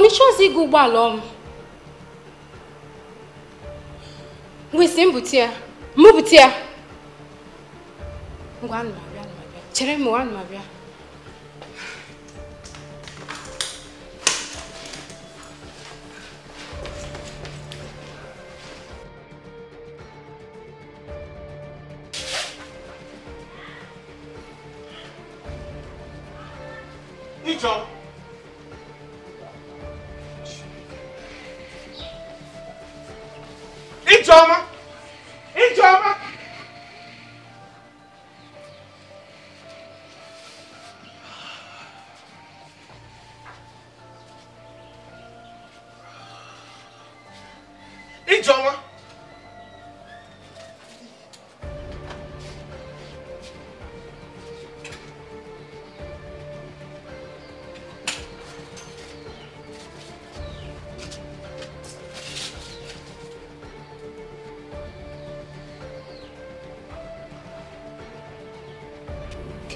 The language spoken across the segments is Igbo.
mana ịchọzi ịga ụgbọala ọm wesi mbute ya mbute ya ngwa anụmabịa chere anụmabịa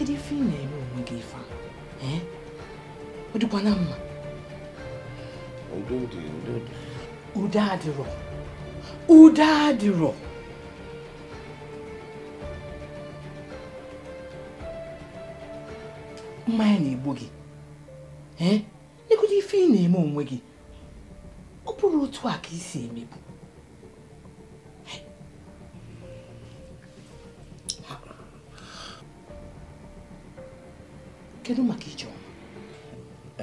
kedu ife ị na-eme onwe gị ife ọ dịkwa na mma udo adịrọ udo adịrọ mmanya na-egbu gị ee ife ị na-eme onwe gị ọ bụrụ otu a ka isi emebu kedu maka ijeọma ana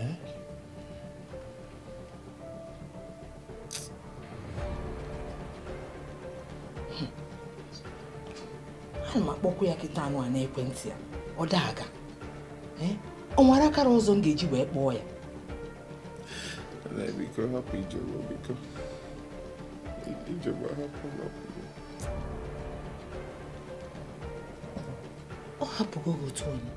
m akpọkwa ya kịta anụ a n'ekwentị ya ọ daa aga ọ eh? nwere akara ọzọ m ga-eji wee kpọọ ya hapụ ọ hapụgo otu onye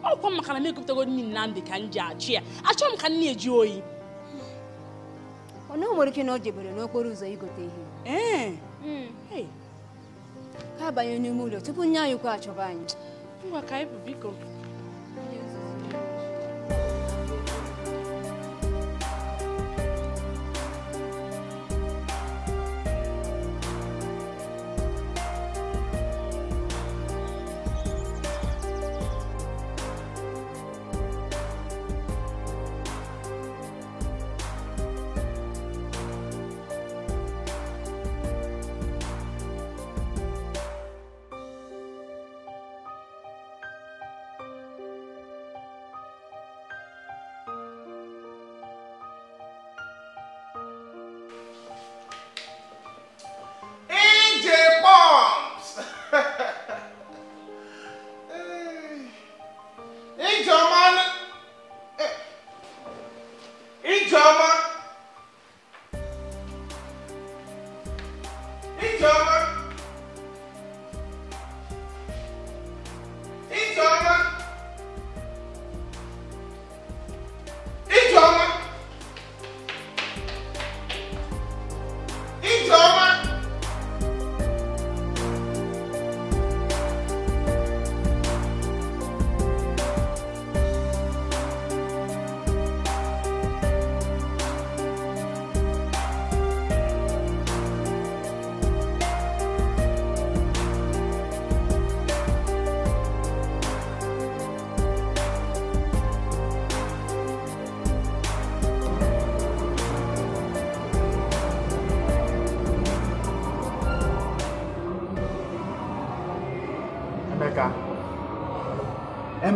ọkwa maka na m egopụtago na nnamdị ka m ji achị ya achọghị m ka nna eji oyi ọ nwere ike na o jebere n'okporo ụzọ igote ihe eh. hmm. ka abanye n'ime ụlọ tupu nye anyị kwa achọba anyị ngwa ka anyị bụ biko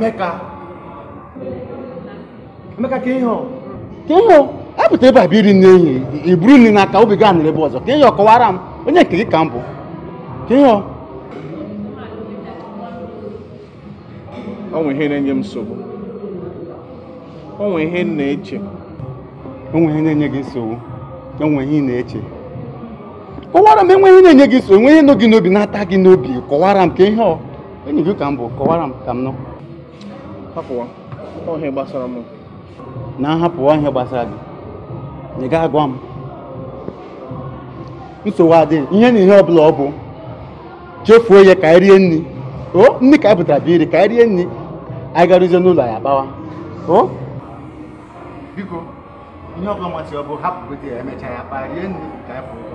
Emeka Emeka ka ihe ka ihe apụta ebe a bịa iri nri enyi iburu nri n'aka obi gaa nere ebe ọzọ ka ihe ọkọwara m onye nke gị ka m bụ ka ihe onwe ihe na-enye m nsogbu onwe ihe na-eche onwe ihe na-enye gị nsogbu onwe ihe na-eche kọwara m enweghị na-enye gị nsogbu enweghị nọ gị n'obi na-ata gị n'obi kọwara m ka ihe ọ enyi gị ka m bụ kọwara m ka m nọ hapụwa ihe gbasara m na nhapụwa ihe gbasara gị ị ga agwa m nsogbu adịghị ihe na ihe ọbụla ọ bụ chefuo ya ka rie nri ndị nri ka pụtara bụ iri ka rie nri agaruzie n'ụlọ ya kpawa biko ihe ọbụla masịrị ọ bụ hapụ ya emechaa ya kpa rie nri ka anyị pụrụ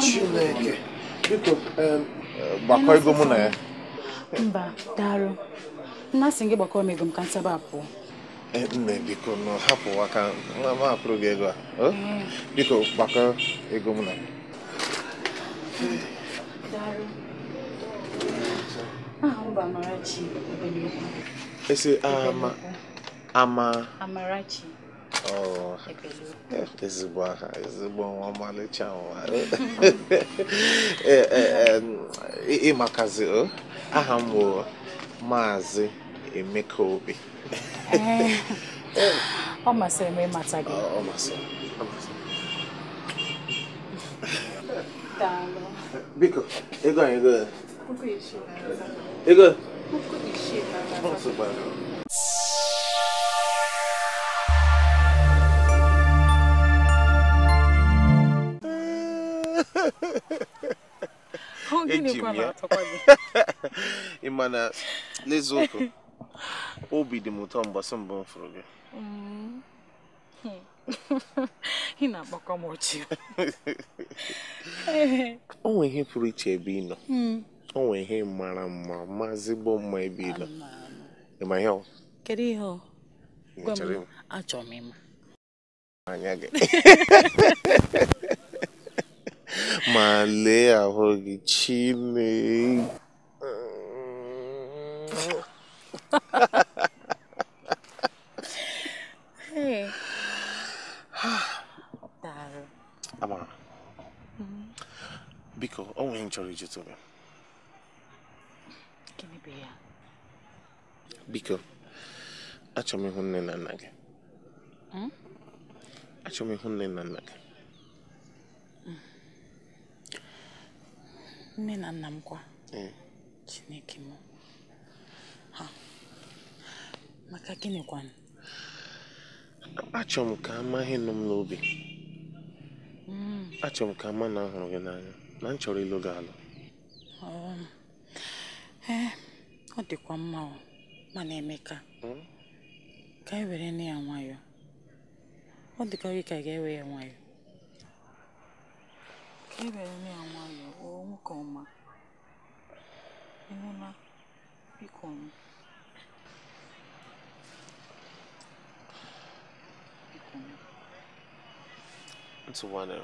Chineke biko eh, mụ na ya mba daalụ nna sị gị gbakọọ m ego m ka nsaba pụọ nne eh, biko nọ hapụ aka ma gị ego a eh. biko gbakọ ego mụ na ya esi ama amarachi ezigbo aha ezigbo nwa ọmalịcha nwa ịmakazi aha m bụ maazị emeka obi ọ masịrị m ịmata gị ọ masịrị ọ masịrị biko ego anyị ego ego ego eji m ya ị ma na n'eziokwu obi dị m ụtọ mgbasị mbụ m fụrụ gị mm-hmm. ị na-akpọkọ m ọchị o nwere ihe pụrụ iche ebe ị nọ mm. o ihe mara mma mazigbo mma ebe ị nọ ịma ihe ọ kedu ihe ọ gwa m achọrọ m ịma anya gị ma lee ahụ gị Chineke Amara biko o nwere m gị biko achọrọ m ịhụ nne na nna gị m hmm? ịhụ nne na nna gị nne na nna m kwa chineke m ha maka gịnị kwanụ m ka amaghị nụ m n'obi hmm. Achọ m ka a ma na ahụrụ gị n'anya na m chọrọ ịlụ gị alụ um, eh, ọ dịkwa mma mana emeka hmm? ka e were na ya nwayọọ ọ dịka gị ka ga-ewe ya nwayọọ Iberamya Wongoma Emuna Picon ntụgharịrị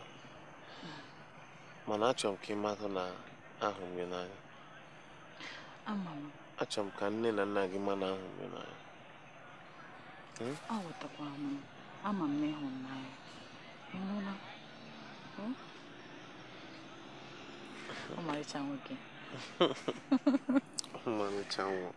mana achọrọ m ka ị mata na ahụ m gị n'anya ama m achọrọ m ka nne na nna gị ma na ahụ m gị n'anya hmm? aghọtakwara m ama m na ịhụrụ m n'anya ịnụla 엄마 이 장우기 엄마 이 장우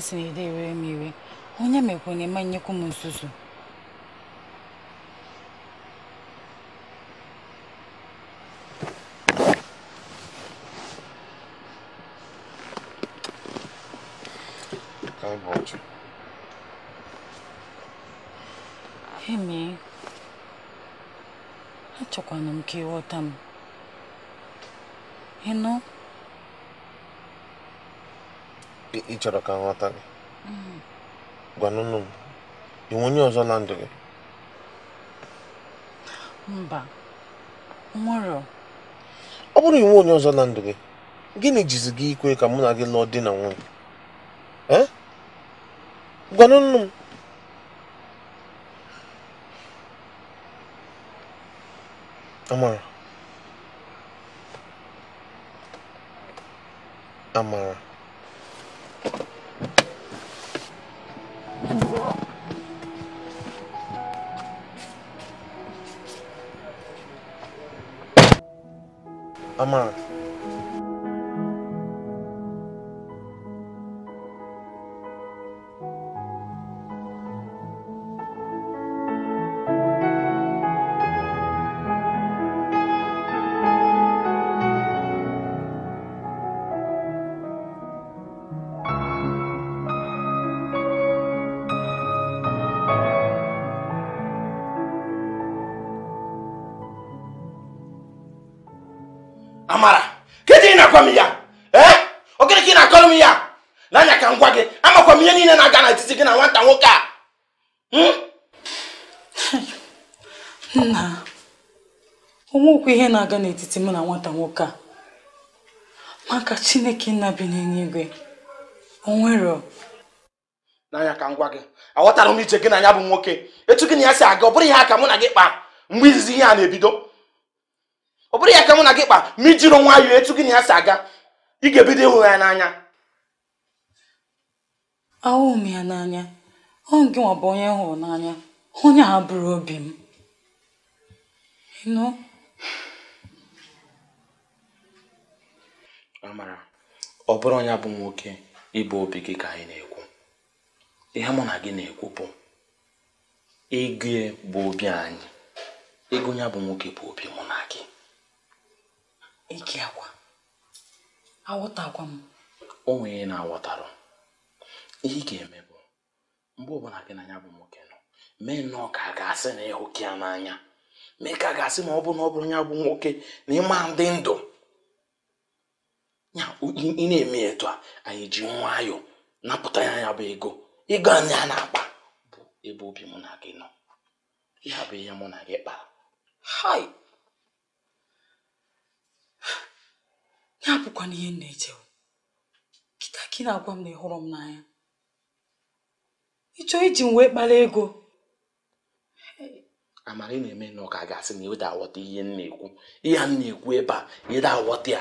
sini dị were m iwe onye mekwa na é me. acho que eme achọkwana que ka ịghọta m não ị chọrọ ka nghọta gị mm. gwanụnụ m inwe onye ọzọ na ndụ gị mba nwere ọ bụrụ inwe onye ọzọ na ndụ gị gịnị jizi gị ikwe ka mụ na gị lụọ di na nwunye eh? gwanụnụ m amara amara I'm on. onwekwa ihe na-aga n'etiti mụ na nwata nwoke a maka chineke nna bi n'eluigwe onwero n'anya ka m gwa gị aghọtara m ije gị na ya bụ nwoke etu gị na ya si aga ọ bụrụ ihe aka mụ na gị kpaa mgbe izizi ihe a na-ebido ọ bụrụ ya aka mụ na gị kpa ma ijiri nwayọọ etu gị na ya si aga ị ga-ebido ịhụ ya n'anya ahụghị m ya n'anya ọhụ gị nwa bụ onye hụrụ n'anya onye a bụrụ obi m amara ọ bụrụ onye bụ nwoke ịbụ obi gị ka anyị na-ekwu ihe mụ na gị na-ekwu bụ ego bụ obi anyị ego ya bụ nwoke bụ obi mụ na gị ike akwa aghọtakwa m o nwere na-aghọtarụ ihe ị ga-eme bụ mgbe ọbụla gị na ya bụ nwoke nọ mee nnọọ ka a ga-asị na ịhụka ya n'anya mee ka ga-asị ma ọ bụ na ọ bụrụ ya bụ nwoke na ịma ndị ndụ ya ị na-eme etu a anyị ji nwayọọ napụta ya ya bụ ego ego anyị a na-akpa bụ ebe obi mụ na gị nọ ya bụ ihe mụ na gị kpara hai ya bụkwana ihe m na-eche kịta na-agwa m na ị hụrụ m n'anya ịchọ iji m wee kpara ego amara ị na-eme na ọka gasị na ịda awọta ihe m na-ekwu ihe m na-ekwu ebe a ịda awọta ya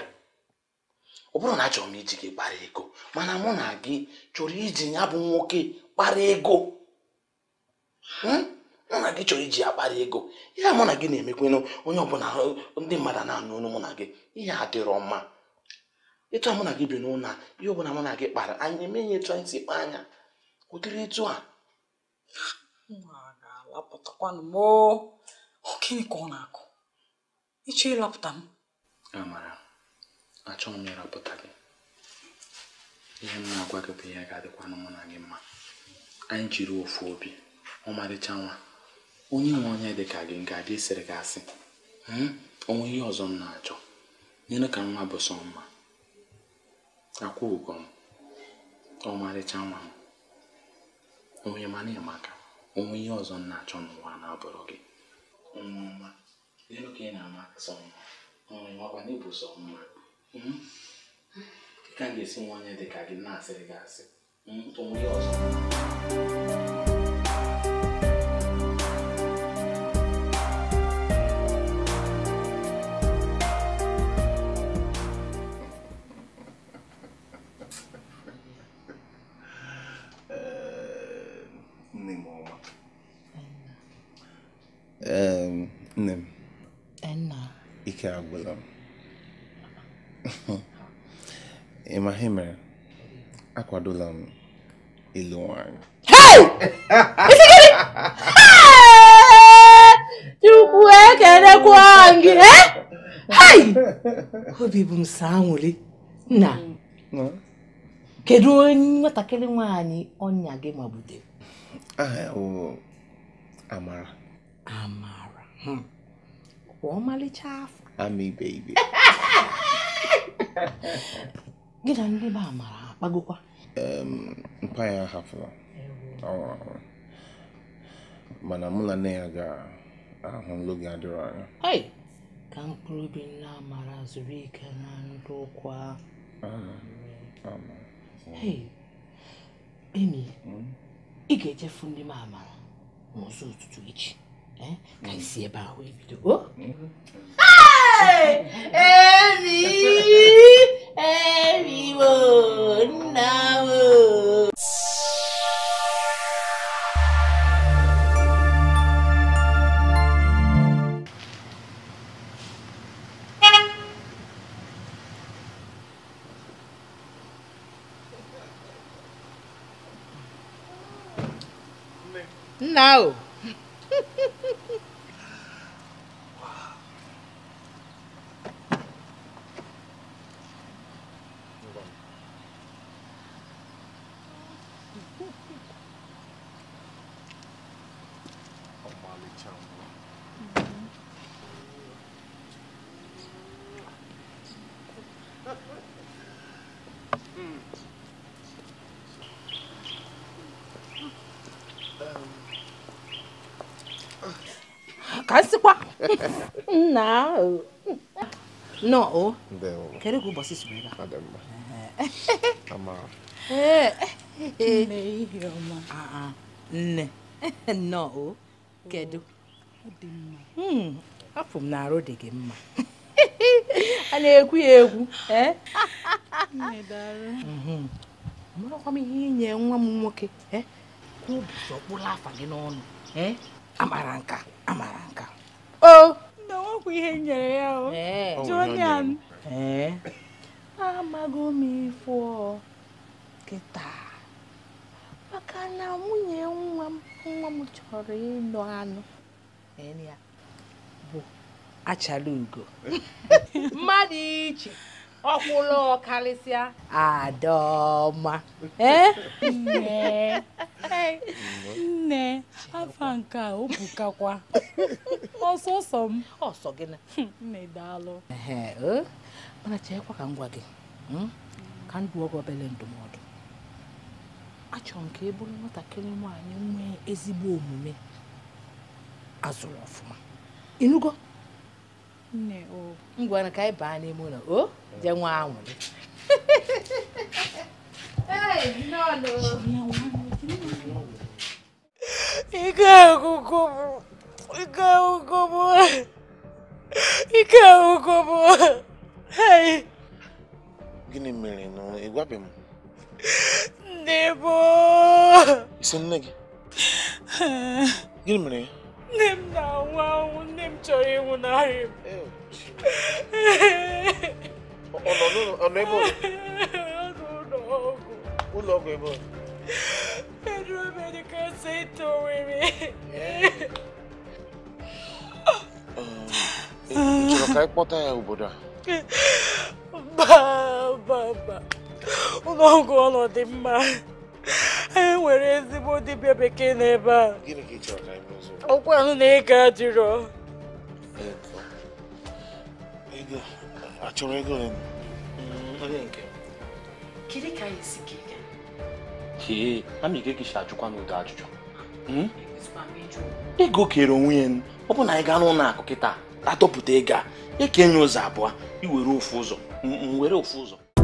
ọ bụrụ na achọrọ m iji gị kpara ego mana mụ na gị chọrọ iji ya bụ nwoke kpara ego hmm? mụ na gị chọrọ iji ya kpara ego ya mụ na gị na-emekwenụ onye ọbụla ndị mmadụ na-anụ ọnụ mụ na gị ihe adịrọ mma ịtụ mụ na gị bi n'ụlọ ihe ọbụla mụ na gị kpara anyị emeghị etu anyị si kpa anya ụdịrị etu a lapụtakwanụ m ọ gịnị ka ọ na-akụ ịchọ ịlapụta m amara achọghị m ịrapụta gị ihe m na-agwa gị bụ ihe ga-adịkwanụ mụ na gị mma anyị jiri ofu obi ọmarịcha nwa onye nwe onye dị ka gị ga-adị isiri gị asị hmm, onwe ihe ọzọ m na-achọ nyere ka nwa bụ sọ mma akwụ ụgwọ m ọmarịcha nwa m onye mana ịmaka onwe ihe ọzọ m na-achọ n'ụwa na-abụrụ gị ọnwụnwa n'elu ka ị na-ama sọ mma ọnwụnwakwa n'ịbụ sọ mma hmm? ka m ga-esi nwa dị ka gị na-asịrị gị asị hmm? onwe ihe ọzọ adụla ịlụ nwanyị chukwu ekelekwa gị obi bụ m saa anwụrị nna kedu onye nwatakịrị nwanyị ọnya gị magbutere aha ya bụ amara amara hmm. ọmalịcha afọ ama ibe ibe gị na ndị be amara akpagokwa mpa ya ahapụla ọ nwụrụ mana mụ na nne ya ga-ahụ n'oge adịrọ anya ka mkpụrụ obi nna amara zuru ike na ndụ ụkwụ ahụ emi hmm? ị ga echefu ndị m amara n'ụzọ ụtụtụ echi eh? ka isi ebe ahụ ebido hmm? oh! emi malicious one. Mm. kasịkwa nna nọ o kedu ka ụbọchị siri ebe a nne ah, ah. nnọọ o kedu hmm, afọ m na-arụ dị gị mma a na-ekwu ya ekwu marakwa e? mhm. m ihe inye nwa m nwoke e? obi ọkpụrụ afa gị n'ọnụ e? amara nka amara nka o Nna nwekwa ihe nyere ya o jonian amago m ifo kịta maka na nwunye nwa m nwa m chọrọ ịlụ anụ bụ achala ugo mmadụ iche ọkwụlụ ọkarịsịa adaọma eh? nne afa nke a bukakwa. ọsọsọ m ọsọ gị na nne daalụ mana eh? cheekwa ka m gwa gị hmm? ka ndụ ọgwọ obele ndụmọdụ achọrọ m ka ị bụrụ nwatakịrị nwaanyị nwee ezigbo omume azụrụ ọfụma ịnụgo nne o ngwana ka anyị baa n'ime ụlọ o je nwa anwụrị ike agụgụ bụ ike agụgụ bụ ike agụgụ bụ gịnị mere na ị gwabeghị m Nebo! Isin nage. Gini mene? Nem na wawu, nem chọrọ ịnwụ n'ahịa m. Ọ nọ n'ụlọ ọ nọ ebe ọ? Ọ nọ n'ụlọ ọgwụ. Ụlọ ọgwụ ebe ọ? Federal Medical Center Owerri. Ị chọrọ ka anyị kpọta ya obodo a? Mba, mba, mba. n'ọgwụ ọnọdụ mma E nwere ezigbo dibịa bekee n'ebe a ọkwa ahụ na ị ga jụrụ achọrọ ego onye mm, nke kedu ka anyị si kega kee ama ike kishi ajụkwa n'udo ajụjụ hmm? ego kere onwe ya ọ bụ na anyị gaa n'ụlọ akụ kịta atọpụta ego a ekenye ụzọ abụọ iwere ofu ụzọ m were ofu ụzọ